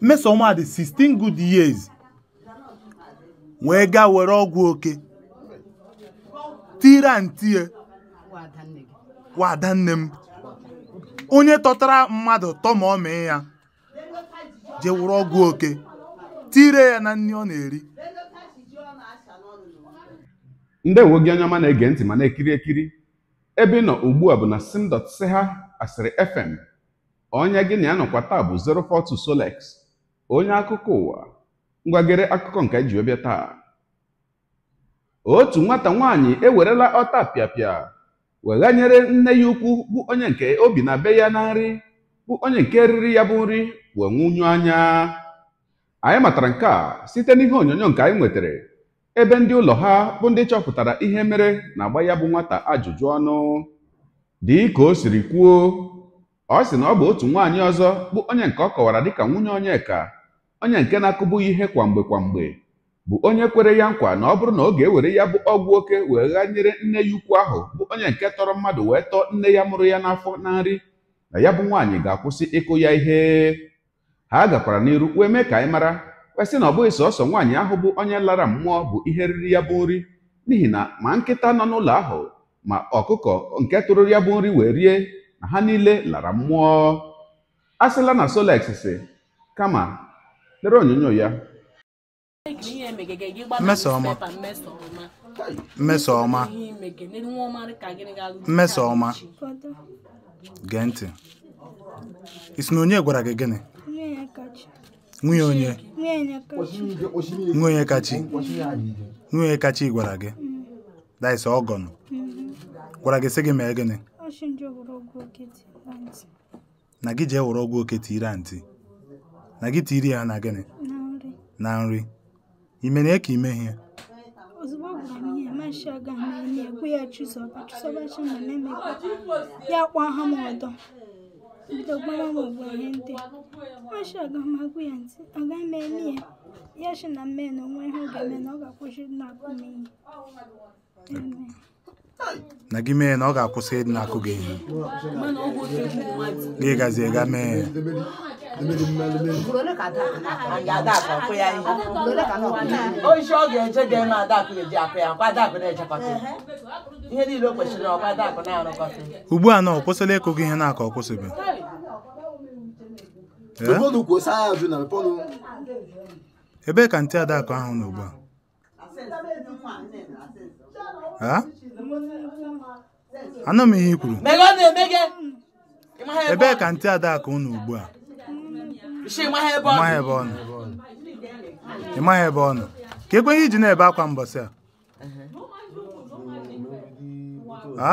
mmesoma dị 16 good years wee ga were ọgwụ oke tire ntie wa ada nne m onye tọtara mmadụ tọmọmị ya je were ọgwụ oke tire ya na nni ọ na-eri ndewo gị onye ọma na-ege ntị ma na-ekiri ekiri ebe ị nọ ugbu a bụ na sim.ch asịrị fm onye gị na ya nọkwa taa bụ 042 Solex onye akụkọ ụwa ngwagịrị akụkọ nke ji ọbịa taa otu nwata nwaanyị ewerela ọta pịapịa weghanyere nne ya ukwu bụ onye nke obi na be ya na nri bụ onye nke riri ya bụ nri wee nwụnyụ anya anyị matara nke a site n'ihe onyonyo nke anyị nwetara ebe ndị ụlọ ha bụ ndị chọpụtara ihe mere na-agba ya bụ nwata ajụjụ ọnụ dị ka o siri kwuo ọ sị na ọ bụ otu nwaanyị ọzọ bụ onye nke ọ kọwara dịka nwunye Onyeka onye nke na-akụbụghị ihe kwamgbe kwamgbe bụ onye kwere ya nkwa na ọ bụrụ na ọ ga-ewere ya bụ ọgwụ oke wee nyere nne ya ukwu ahụ bụ onye nke tọrọ mmadụ wee tọọ nne ya mụrụ ya n'afọ na nri na ya bụ nwaanyị ga-akwụsị ịkụ ya ihe ha gakwara n'iru wee mee ka anyị mara kwesị na ọ bụghị sọsọ nwaanyị ahụ bụ onye lara mmụọ bụ ihe riri ya bụ nri n'ihi na ma nkịta nọ n'ụlọ ahụ ma ọkụkọ nke tụrụ ya bụ nri wee rie na ha niile lara mmụọ asịla na Solex si kama lere onyonyo ya ọma. Mmesoma ọma. gee ntị ị sị na onye gwara gị gịnị nwunye onye nwunye kachi nwunye kachi gwara gị daịsa ọgọnụ gwara gị sị gị mee gịnị na gị jee were ọgwụ oke tiri antị na gị tiri ya na gịnị na nri mere ya ka ime ihe ozugbo ọ gwara ihe ya chụzọba na memekwa ya kwa ha m ọdọ bido gbara m ọgwụ ihe ndị aga m agwụ ya ntị aga m eme ya ya chi na mme na onwe ha ga-eme na ọ ga-akwụsị na-akụ m na gị mee na ọ ga-akwụsị ịdị na-akụ gị ihe gị mee oisi ọ ga-eje ga-eme adakụ ga-eji akụ ya na echekọta ihe niile o kwesịrị na-arụkọta ugbu a na ọ kwụsịla ịkụ ihe na aka ọ kwụsịbeghị ebee ka ntị adakụ ahụ nọ a anọ m ihe i kwuru ebee ka ntị adakụ unu ugbu a ị ịmaghị ebe ọ nọ ka ekweghị iji na-ebe akwa mbọsị a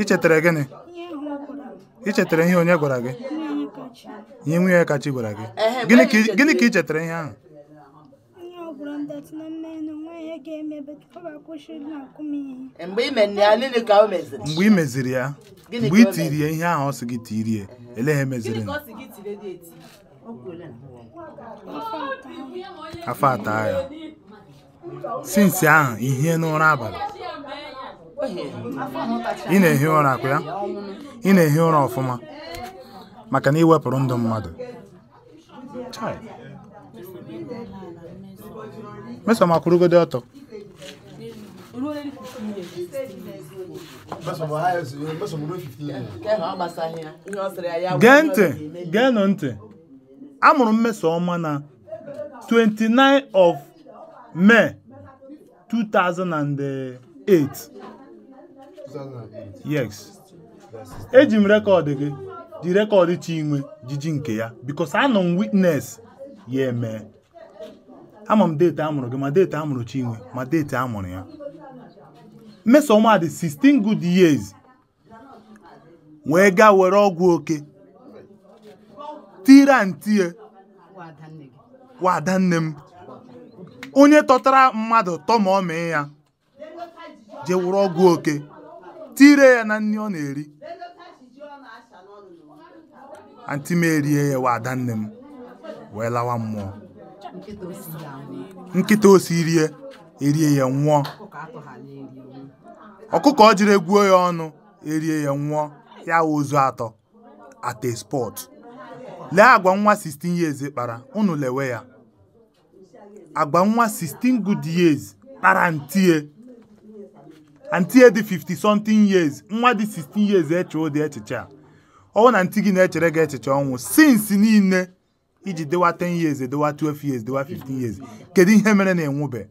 ị chetara gịnị ị ihe onye gwara gị ihe nwunye kachi gwara gị gịnị ka ị chetara ihe ahụ Joseph na mmenụ nwaanyị ga ga na-akụ ihe. Mgbe ị meziri ya mgbe ị tiri ya ihe ahụ ọ sị gị tirie ele ha emeziri afọ atọ ya sinsi ahụ ihe n'ụra abalị ị na-ehi ụra ya ị na-ehi ụra ọfụma maka na iwepụrụ ndụ mmadụ mesoma akwụrụgodo ọtọ gee ntị geenụ ntị amụrụ mmesoma na 29 of May 2008 yes eji m rekọdụ gị ji rekọdụ Chinwe jiji nke ya because anọ m witness ya emee ama m deeti amụrụ gị ma deeti amụrụ Chinwe ma deeti amụrụ ya Mmesoma dị 16 good years wee gaa were ọgwụ oke tire ntie wada nne m onye tọtara mmadụ mee ya je ọgwụ oke tire ya na nri ọ na-eri anti m erie ya wada nne m wee lawa mmụọ nkịta o si rie erie ya nwụọ ọkụkọ ọ jiri egwuo ya ọnụ erie ya nwụọ ya ozu atọ at a spot lee agwa nwa 16 years kpara unu lewe ya agwa nwa 16 good years kpara ntie ntie dị 50 something years nwa dị 16 years eche ụdị echiche a ọwụ na ntị gị na-echere gị echiche ọnwụ since niile iji dewa 10 years edewa 12 years dewa 15 years kedu ihe mere na enwube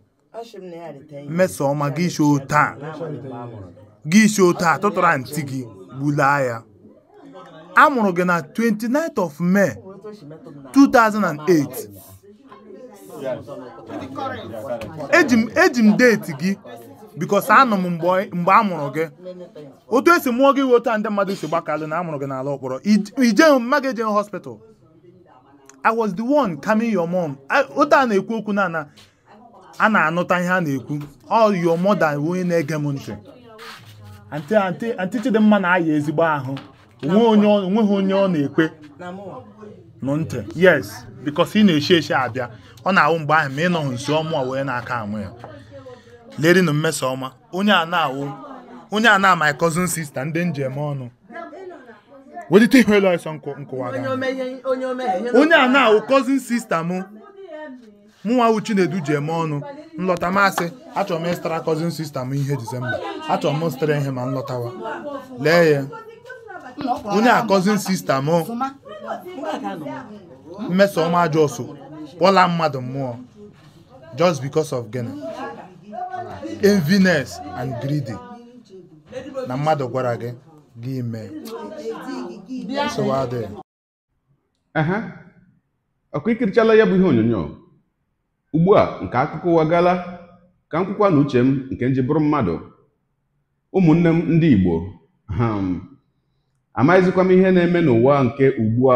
mmeso ọma gị isi taa gị shoo taa tụtụrụ ntị gị gbulaa ya a gị na 29th of May 2008 eji m deeti gị because anọ m mgbe a gị otu esi mụọ gị iwe otu a ndị mmadụ si gbakalụ na a mụrụ gị n'ala mkpọrọ ije mma gị hospital I was the one calming your mom ote a na-ekwu okwu na na a na-anụta ihe a na-ekwu all your mother onye na-ege m ntị anti Chidimma na-aya ezigbo ahụ onweghị onye ọ na-ekwe nụ ntị yes because ị na-eshi eshi abịa ọ na-awụ mgbe ahụ ma ị nọghị nso ọmụ wee na-aka amụ ya lerinu mmesa ọma onye a na-awụ onye a na my cousin sister ndị njem ọnụ welite ihela nsọ nkụwa onye a na-awụ cousin sista m mụnwa wụ Chinedu ji eme ọnụ nlọta masị achọrọ m ịstara cousin sista m ihe Disemba achọrọ m stara ihe ma nlọtawa lee ya onye a cousin sista mmeso Mmesoma Ajosu kpọla mmadụ mmụọ just because of gịnị enviness and greedy na mmadụ gwara gị gị mee ọkụ ikirichala ya bụ ihe onyonyo ugbu a nke akụkọ ụwa gala ka m kwukwa na uche m nke nji bụrụ mmadụ ụmụnne m ndị Igbo amaghịzikwa m ihe na-eme n'ụwa nke ugbu a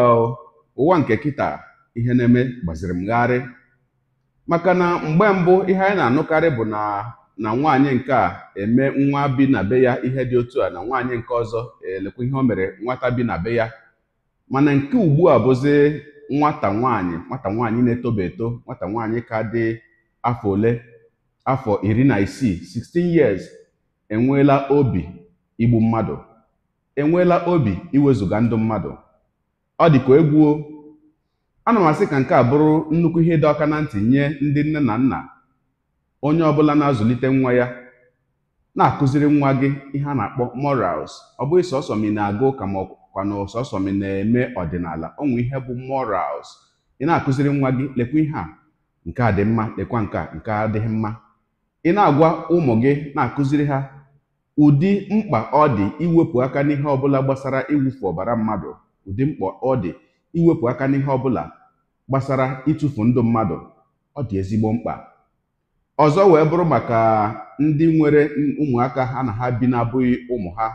ụwa nke kịta ihe na-eme gbaziri m gharị maka na mgbe mbụ ihe anyị na-anụkarị bụ na na nwaanyị nke a eme nwa bi na be ya ihe dị otu a na nwaanyị nke ọzọ elekwa ihe o mere nwata bi na be ya mana nke ugbua a bụzi nwata nwaanyị nwata nwaanyị na-etoba eto nwata nwaanyị ka dị afọ ole afọ iri na isii 16 years enweela obi igbu mmadụ enweela obi iwezuga ndụ mmadụ ọ dị egwuo ana m asị ka nke a bụrụ nnukwu ihe dị ọka na ntị nye ndị nne na nna onye ọ bụla na-azụlite nwa ya na-akụziri nwa gị ihe a na-akpọ morals ọ bụghị sọsọ m na-aga ụka ma na sọsọ m na-eme ọdịnala ọnwụ ihe bụ morals ị na-akụziri nwa gị lekwa ihe a nke a dị mma lekwa nke a nke adịghị mma ị na-agwa ụmụ gị na-akụziri ha ụdị mkpa ọ dị iwepụ aka n'ihe ọbụla gbasara iwufu ọbara mmadụ ụdị mkpa ọ dị iwepụ aka n'ihe ọbụla gbasara ịtụfu ndụ mmadụ ọ dị ezigbo mkpa ọzọ wee bụrụ maka ndị nwere ụmụaka ha na ha bi na-abụghị ụmụ ha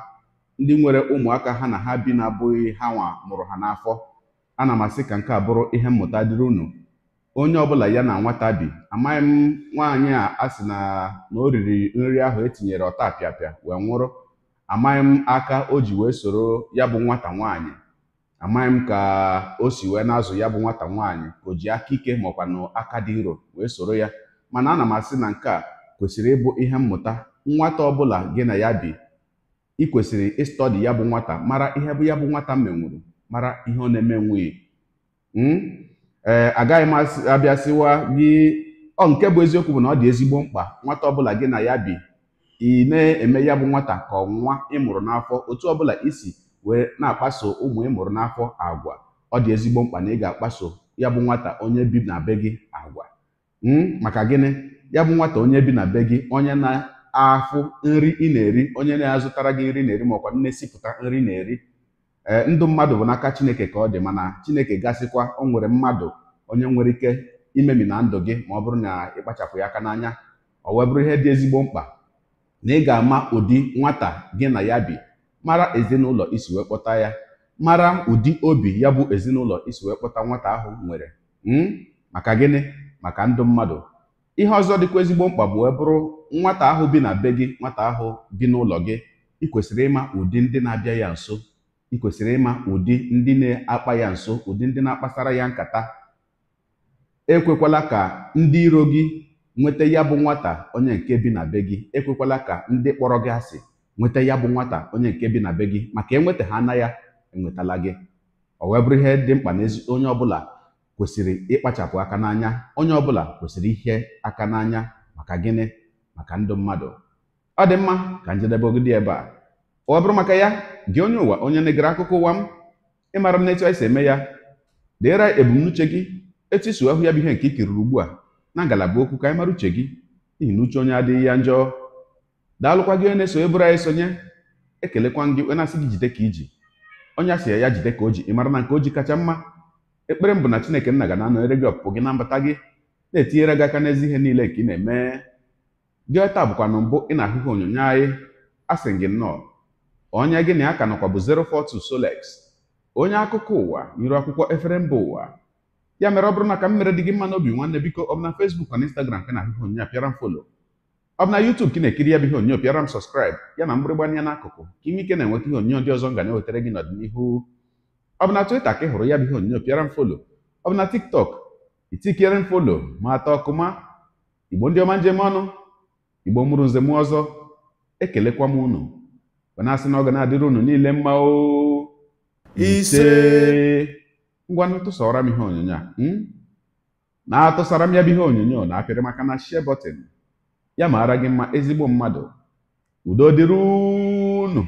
ndị nwere ụmụaka ha na ha bi na-abụghị ha nwa mụrụ ha n'afọ ana m asị ka nke a bụrụ ihe mmụta dịrị unu onye ọbụla ya na nwata bi amaghị m nwaanyị a asị na na o riri nri ahụ etinyere ọta pịapịa wee nwụrụ amaghị m aka o ji wee soro ya bụ nwata nwaanyị amaghị m ka o si wee na-azụ ya bụ nwata nwaanyị o ji aka ike maọkwa na aka dị nro wee soro ya mana ana m asị na nke a kwesịrị ịbụ ihe mmụta nwata ọbụla gị na ya bi ị kwesịrị ịstọdi ya bụ nwata mara ihe bụ ya bụ nwata menwuru mara ihe ọ na-eme nwunye hmm? ee eh, agaghị m abịasịwa gị ọ nke bụ eziokwu bụ na ọ dị ezigbo mkpa nwata ọbụla gị na ya bi ị na-eme ya bụ nwata ka ọnwa ịmụrụ n'afọ otu ọbụla isi wee na-akpaso ụmụ ịmụrụ n'afọ agwa ọ dị ezigbo mkpa na ị ga-akpaso ya bụ nwata onye bi na be gị agwa Hmm? maka gịnị ya bụ nwata onye bi na be gị onye na-afụ nri ị na-eri onye na-azụtara gị nri na-eri makwa nne esipụta nri na-eri ee eh, ndụ mmadụ bụ n'aka chineke ka ọ dị mana chineke gasịkwa o nwere mmadụ onye nwere ike imemi na ndụ gị ma ọ bụrụ na ịkpachapụ ya aka n'anya ọ wee bụrụ ihe dị ezigbo mkpa na ị ga-ama ụdị nwata gị na ya bi mara ezinụlọ isi wee kpọta ya mara ụdị obi ya bụ ezinụlọ isi wee kpọta nwata ahụ nwere hmm? maka gịnị maka ndụ mmadụ ihe ọzọ dịkwa ezigbo mkpa bụ bụrụ nwata ahụ bi na be gị nwata ahụ bi n'ụlọ gị ị kwesịrị ịma ụdị ndị na-abịa ya nso ị kwesịrị ịma ụdị ndị na-akpa ya nso ụdị ndị na-akpasara ya nkata ekwekwala ka ndị iro gị nweta ya bụ nwata onye nke bi na be gị ekwekwala ka ndị kpọrọ gị asị nweta ya bụ nwata onye nke bi na be gị maka enweta ha na ya enwetala gị ọ wee bụrụ ihe dị mkpa n'ezi onye ọbụla kwesịrị ịkpachapụ aka n'anya onye ọbụla kwesịrị ihe aka n'anya maka gịnị maka ndụ mmadụ ọ dị mma ka njedebe dị ebe a ọ bụrụ maka ya gị onye ụwa onye na-egere akụkọ ụwa m ịmara m etu anyị si eme ya deere ebumnuche gị etu isi ahụ ya bụ ihe nke ikiriri ugbu a na ngalaba okwu ka anyị mara uche gị n'ihi na uche onye adịghị ya njọ daalụkwa gị onye na eso bụrụ anyị sonye ekelekwa gị onye na-asị gị jide ka iji onye asị ya ya jide ka o ji mara na nke o ji kacha mma ekpere m bụ na chineke nna ga na-anọnyere gị ọpụpụ gị na mbata gị na-etinyere gị aka n'ezi ihe niile nke ị na-eme gị taa bụkwa na mbụ ị na-ahụghị onyonyo anyị asị gị nnọọ onye gị na ya ka nọkwa bụ 042 Solex onye akụkọ ụwa nyere akwụkwọ efere mba ụwa ya mere ọ bụrụ na ka m mere dị gị mma n'obi nwanne biko ọ bụ na Facebook na Instagram ka na-ahụghị onyonyo a pịara m folo ọ bụ na YouTube ka na-ekiri ya bụ ihe onyonyo pịara m sọskraịb ya na n'akụkụ ka inwe ike na-enweta ihe onyonyo ndị ọzọ m ga na-ewetara gị n'ọdịnihu ọ bụ na twita ka ị hụrụ ya bụ ihe onyonyo pịara m folo ọ bụ na TikTok itikere m folo ma atọ ọkụma igbo ndị ọma njem ọnụ igbo mụrụ nze m ọzọ ekelekwa m unu Gbanasị na ọ ga na-adịrị unu niile mma ise ngwanụ tụsara m ihe onyonyo a hmm? na-atụsara m ya bụ ihe onyonyo na apịrị maka na share button ya maara gị mma ezigbo mmadụ udo dịrị unu